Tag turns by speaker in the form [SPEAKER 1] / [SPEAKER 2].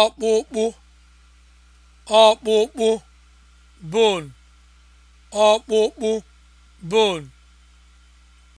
[SPEAKER 1] ọkpụkpụ ọkpụkpụ bone ọkpụkpụ bone